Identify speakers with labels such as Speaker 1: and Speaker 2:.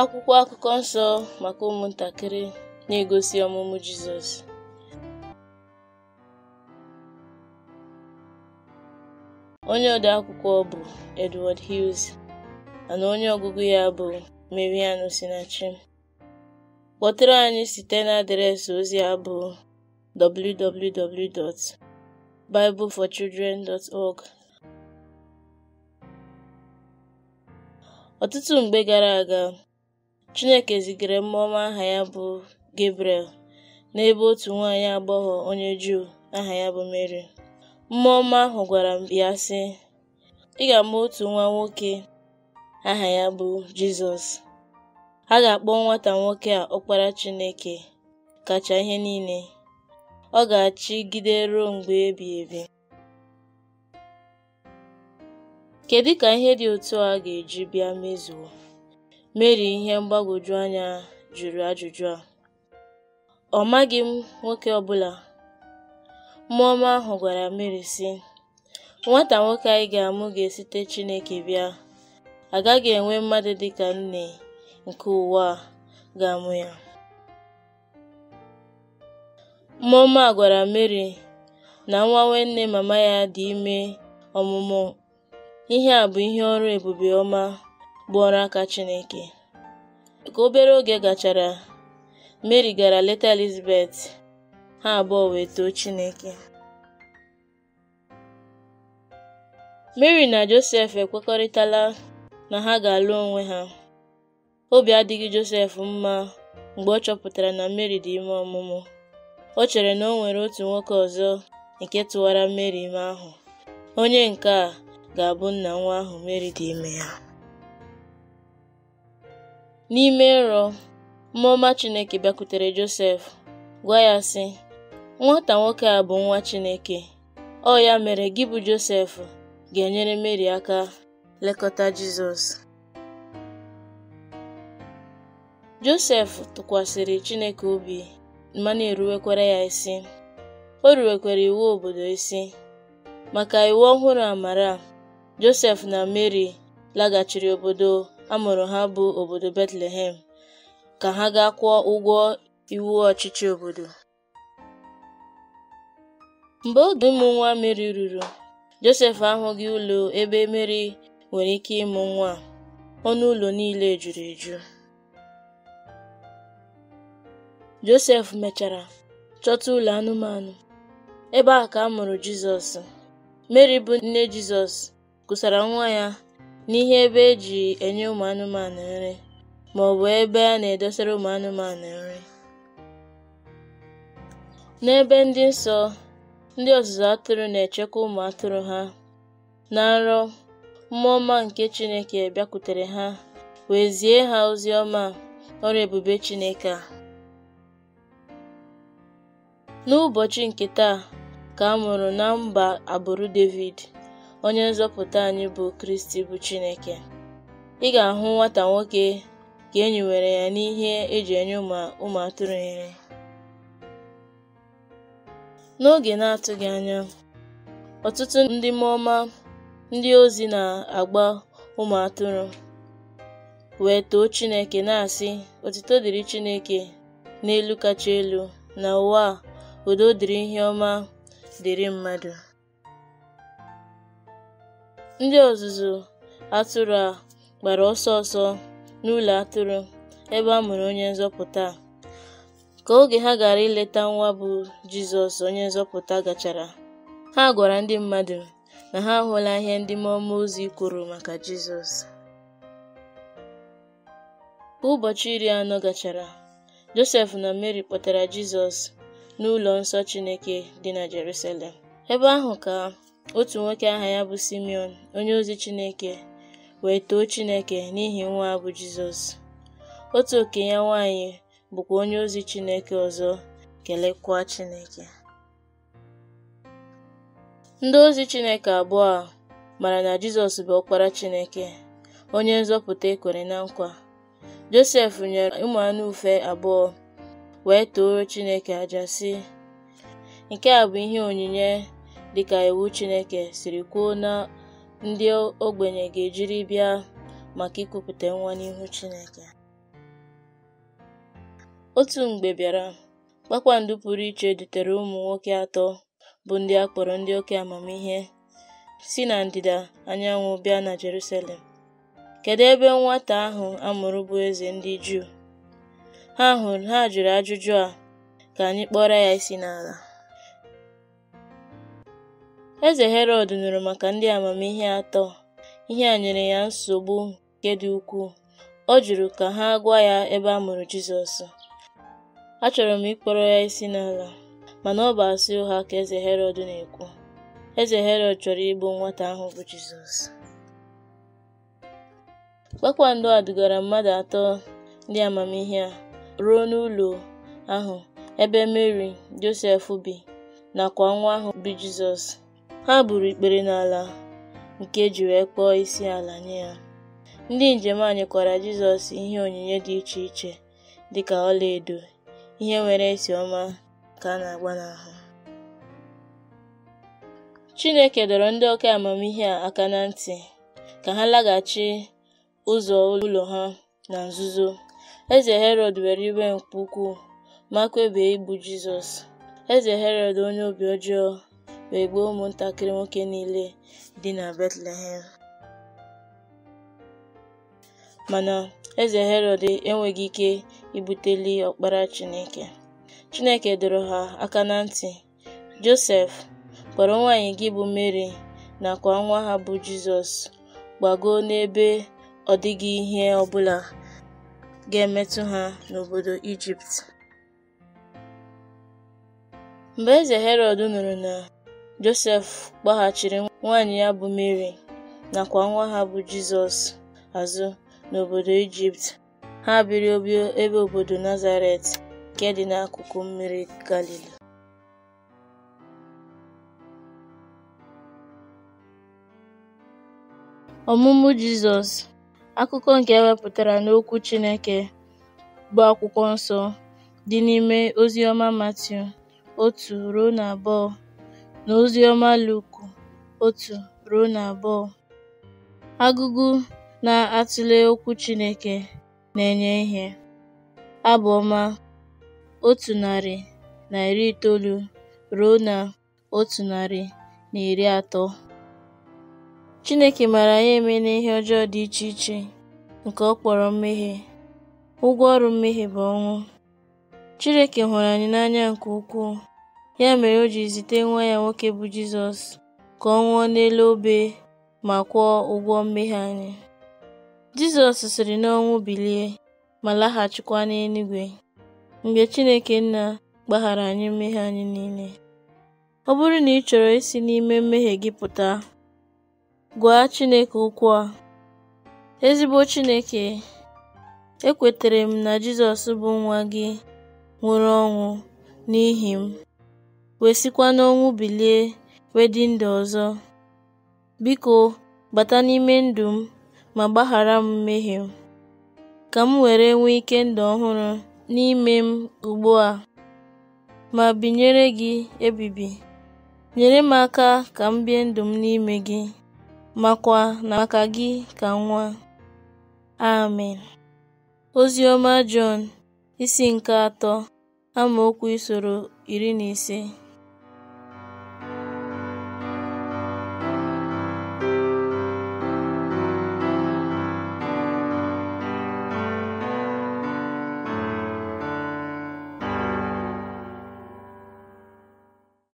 Speaker 1: akwụkwọ akụkọ nsọ maka ụmụntakịrị na-egosi ọmụmụ Jizọs onye ode akwụkwọ bụ Edward Hughes na onye ọgụgụ ya bụ Mariano Sinachi kpọtụrụ anyị site na adreesị ozi a bụ www.bibleforchildren.org ọtụtụ mgbe gara aga Chineke zigara mmụọ aha ya bụ Gabriel n'ebe otu nwaanyị agbọghọ onye Juu aha ya bụ Meri. Mmụọ ọma ahụ gwara ya sị, “Ị ama otu nwa nwoke aha ya bụ Jizọs. A ga-akpọ nwata nwoke a Ọkpara Chineke kacha ihe niile. Ọ ga-achịgide ruo mgbe ebighị ebi.” Kedu ka ihe dị otu a ga-eji bịa mezuo? Mary ihe mgbagwoju anya jụrụ ajụjụ a: “Ọ maghị m nwoke ọbụla. bụla,” ahụ gwara Mary, sị, “Nwata nwoke anyị ga-amụ ga-esite Chineke bịa, agaghị enwe mmadụ dị ka nne nke ụwa a ga-amụ ya.” mmụọma ọma gwara Mary na nwa nwanne mama ya dị ime ọmụmụ, ihe a bụ ihe ọrụ ebube ọma. bụ ọrụ aka Chineke. Ka obere oge gachara, Mary gara leta Elizabeth, ha abụọ wee too Chineke. Mary na Joseph ekwekọrịtala na ha ga-alụ onwe ha. Obi adịghị Joseph mma mgbe ọ chọpụtara na Mary dị ime ọmụmụ. o chere na o nwere otu nwoke ọzọ nke tụwara Mary ime ahụ. Onye nke a ga-abụ nna nwa ahụ Mary dị ime ya. N'ime nrọ, mmụọ ọma Chineke bịakwutere Josef, gwa ya sị, “Nwata nwoke a bụ nwa Chineke, ọ ya mere gị bụ Josef ga-enyere Mary aka lekọta Jizọs.” Josef tụkwasịrị Chineke obi ma na-eruwekwara ya isi. O ruwekwara iwu obodo isi. Maka iwu ọhụrụ amara, Josef na Mary laghachiri obodo a mụrụ ha bụ obodo Bethlehem, ka ha gaa kwụọ ụgwọ iwu ọchịchị obodo. Mgbe oge ụmụ nwa Meri ruru, Josef ahụghị ụlọ ebe Meri nwere ike ịmụ nwa ọnụ ụlọ niile juru eju. Josef mechara chọta ụlọ anụmanụ, ebe a ka a mụrụ Jizọs. Meri bụ nne Jizọs kusara nwa ya n'ihe ebe e ji enye ụmụ anụmanụ nri maọbụ ebe a na-edosara anụmanụ nri. N'ebe ndị nsọ, ndị ọzụzụ atụrụ na-echekwa ụmụ atụrụ ha. Na nrọ, mmụọ ọma nke Chineke bịakwutere ha wee zie ha ozi ọma ọrụ ebube Chineke a. N'ụbọchị nke taa ka a mụrụ na mba agbụrụ Devid. onye nzọpụta anyị bụ Kristi bụ Chineke ị ga-ahụ nwata nwoke ka e nyiwere ya n'ihe eji enye ụmụ atụrụ nri n'oge na-atụghị anya ọtụtụ ndị mmụọma ndị ozi na-agba ụmụ atụrụ wee too Chineke na-asị otito dịrị Chineke n'elu kacha elu na ụwa udo dịrị ihe ọma dịrị mmadụ Ndị ọzụzụ atụrụ a gbara ọsọ ọsọ n'ụlọ atụrụ ebe a mụrụ Onye Nzọpụta a, ka oge ha gara ileta nwa bụ Jizọs Onye Nzọpụta gachara, ha gwara ndị mmadụ na ha hụla ihe ndị mmụọ ozi kwuru maka Jizọs. Ka ụbọchị iri anọ gachara, Josef na Mary kpọtara Jizọs n'ụlọ nsọ Chineke dị na Jerusalem, ebe ahụ ka otu nwoke aha ya bụ Simeon onye ozi Chineke wee too Chineke n'ihi nwa bụ Jizọs otu okenye ya nwanyị bụkwa onye ozi Chineke ọzọ kelekwa Chineke ndị ozi Chineke abụọ a mara na Jizọs bụ ọkpara Chineke onye nzọpụta ekwere na nkwa Josef nyere ụmụ anụ abụọ wee too Chineke aja sị nke a bụ ihe onyinye dịka iwu Chineke siri kwuo na ndị ogbenye ga-ejiri bịa maka ikwupụta nwa n'ihu Chineke. Otu mgbe bịara, kpakpando pụrụ iche dutere ụmụ nwoke atọ bụ ndị a kpọrọ ndị oke amamihe si na ndịda anyanwụ bịa na Jerusalem. kedu ebe nwata ahụ amụrụ bụ eze ndị Juu? Ha hụrụ ha jụrụ ajụjụ a, ka anyị kpọrọ ya isi n'ala. Eze Herọd nụrụ maka ndị amamihe atọ, ihe a nyere ya nsogbu nke dị ukwuu, ọ jụrụ ka ha gwa ya ebe a mụrụ jizọs Achọrọ m ịkpọrọ ya isi n'ala, mana ọ bụ asị ụgha ka eze Herọd na-ekwu. Eze Herọd chọrọ igbu nwata ahụ bụ jizọs. Kpakpando a dugara mmadụ atọ ndị amamihe a ruo n'ụlọ ahụ ebe Meri, Josef bi nakwa nwa ahụ bi Jizọs. Ha gburu ikpere n'ala nke juru e ji wee kpọọ isi ala nye ya. Ndị njem anyị kwara Jizọs ihe onyinye dị iche iche dịka ọlaedo, ihe nwere esi ọma ka a na-agba n'ahụ. Chineke dọrọ ndị oke amamihe a aka na ntị ka ha laghachi ụzọ ụlọ ha na nzuzo. Eze Herọd were iwe nke ukwuu ma kwebie igbu Jizọs. Eze Herọd onye obi ọjọọ wee gbuo ụmụntakịrị nwoke niile dị na Betlehem. Mana eze Herọd enweghị ike ibuteli ọkpara Chineke. Chineke dọrọ ha aka na ntị. Josef kpọrọ nwanyị gị bụ mary nakwa nwa ha bụ Jizọs gbago n'ebe ọ dịghị ihe ọbụla ga-emetụ ha n'obodo Ijipt. Mgbe eze Herọd nụrụ na Josef gbaghachiri nwanyị ya bụ na nakwa nwa ha bụ Jizọs azụ n'obodo Ijipt, ha biri ebe obodo Nazaret nke dị n'akụkụ mmiri Galili. Ọmụmụ Jizọs, akụkọ nke ewepụtara n'Okwu Chineke bụ Akwụkwọ Nsọ, dị n'ime Oziọma Matiu otu ruo na abụọ. n'Oziọma Luku otu ruo na abụọ. Agụgụ na-atụle okwu Chineke na-enye ihe. Abụ ọma otu narị na iri itoolu ruo na otu narị na iri atọ. Chineke maara anyị na ihe ọjọọ dị iche iche nke ọ kpọrọ mmehie. Ụgwọ ọrụ mmehie bụ ọnwụ. Chineke hụrụ anyị n'anya nke ukwuu. Ya mere o ji zite nwa ya nwoke bụ Jizọs ka ọ nwụọ n'elu obe ma kwụọ ụgwọ mmehie anyị. Jizọs siri n'ọnwụ bilie ma laghachikwa n'eluigwe mgbe Chineke Nna gbaghara anyị mmehie anyị niile. Ọ bụrụ na ị chọrọ isi n'ime mmehie gị pụta, gwa Chineke okwu a. Ezigbo Chineke, ekwetere m na Jizọs bụ nwa gị nwụrụ ọnwụ n'ihi m. wee sikwa n'ọnwụ bilie wee dị ọzọ. Biko, bata n'ime ndụ m ma gbaghara m mmehie m, ka m were nwee ike ndụ ọhụrụ n'ime m ugbu a, ma binyere gị ebibi. Nyere m aka ka m bie ndụ m n'ime gị, makwa na maka gị ka nwa. Amen. Ozi ọma Jọn isi nke atọ amaokwu isoro iri na ise